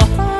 your heart.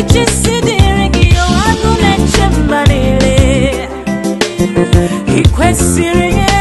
ichịsidịrị gị agụ na-eche mma niile i kwesịrị ya